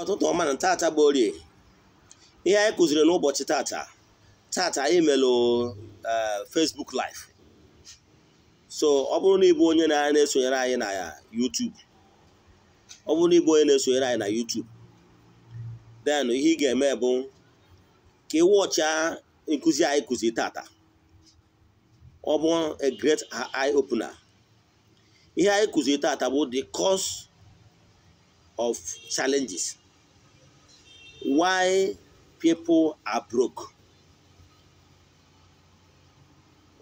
ụtụtụ ọma na tata bụ orie ihe anyị kụziri n'ụbọchị tata tata anyị melụ eh, Facebook live so ọ bụrụ na ịbụ onye na-esonyere anyị na YouTube ọ bụrụ na ịbụ onye na-esonyere anyị na YouTube then ihe ị ga-eme bụ ka ị wọcha nkụzi anyị kụzi tata ọ bụ a great eye opener ihe anyị kụziri tata bụ the cause of challenges why people are broke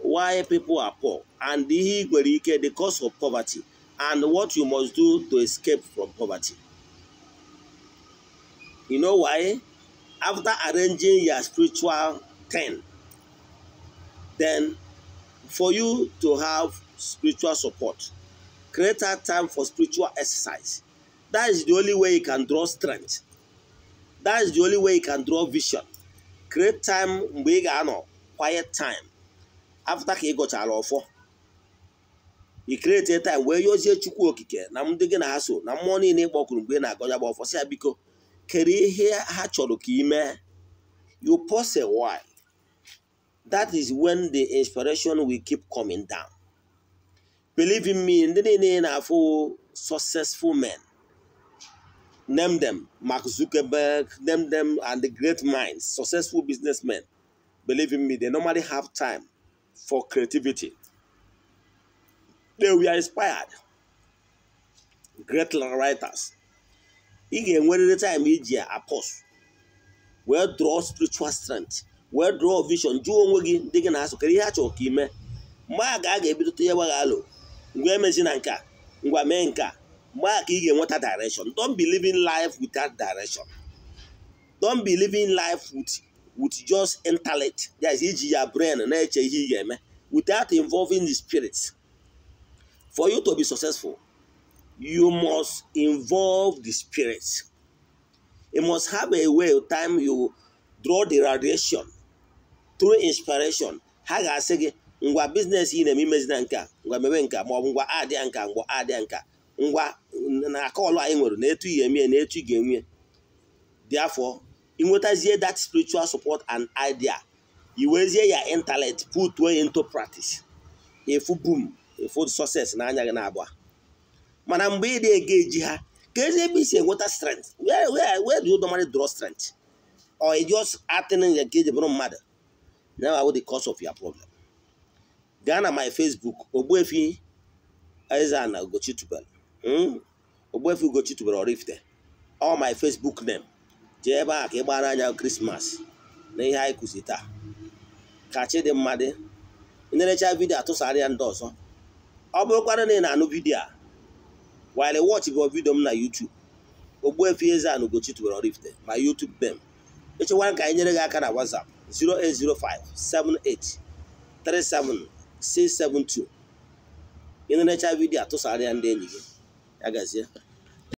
why people are poor and ihe nwere ike the cause of poverty and what you must do to escape from poverty you know why after arranging your spiritual ten then for you to have spiritual support create that time for spiritual exercise that is the only way you can draw strength that's is the only way you can draw vision create time mgbe ị ga-anọ quiet time after ka ị gụchara ọfọ i create time wee yozie chukwu okike na ndị gị na ha so na mmụọ niile ịkpọkuru mgbe ị na-agọja gba ọfọ si ya biko kere ihe ha chọrọ ka ị mee you pause a while that is when the inspiration will keep coming down believe in me ndị niile na-afụ successful men Name them Mark Zuckerberg, name them and the great minds, successful businessmen. Believe in me, they normally have time for creativity. They were inspired. Great writers. Ị ga-enwerịrị time of apostle wee draw spiritual strength wee draw vision do onwe gi ndị gị na-asụ kedu ihe a chọrọ ka ime mgbe a ga a ga-ebidote ihe gbagha alụ ngwa emezi na nka ngwa mee nka mgbe a ka direction don't be living life without direction don't be living life with with just intellect that is iji your brain and eche ihe without involving the spirits, for you to be successful you must involve the spirits. you must have a way of time you draw the radiation through inspiration ha ị na-eme imezi na nka ngwa nka maọbụ nka ngwa nka na akọlụ anyị nwere na etu ihe emee na etu ị ga-enwe therefore ịnwetazie that spiritual support and idea iwezie ya intellect put way into practice efu boom efu success na-anya gị na-abụọ mana mgbe ị na-ege eji ha ka ezi ebe isi enweta strength where where where do you normally draw strength or you just acting ka eji bụrụ mmadụ now I will the cause of your problem gaa na my Facebook Ogbuefi Eze-Ana Ugochitubelu hmm? Ogbuefi Ugochi tubelu Oraifite all my Facebook name jee ebe a ka ị gbara anya krismas na ihe anyị kụzi taa ka chi dị mmadụ dị nerecha vidiyo atụsara ya ndị ọzọ ọ bụrụkwara na ị na-anụ vidiyo a while watch bụ vidiyo m na YouTube Ogbuefi Eze-Ana Ugochi tubelu Oraifite ma YouTube name echekwara ka anyị nyere gị aka na WhatsApp 08057837672 ị nerecha vidiyo atụsara ya ndị enyi gị HZ.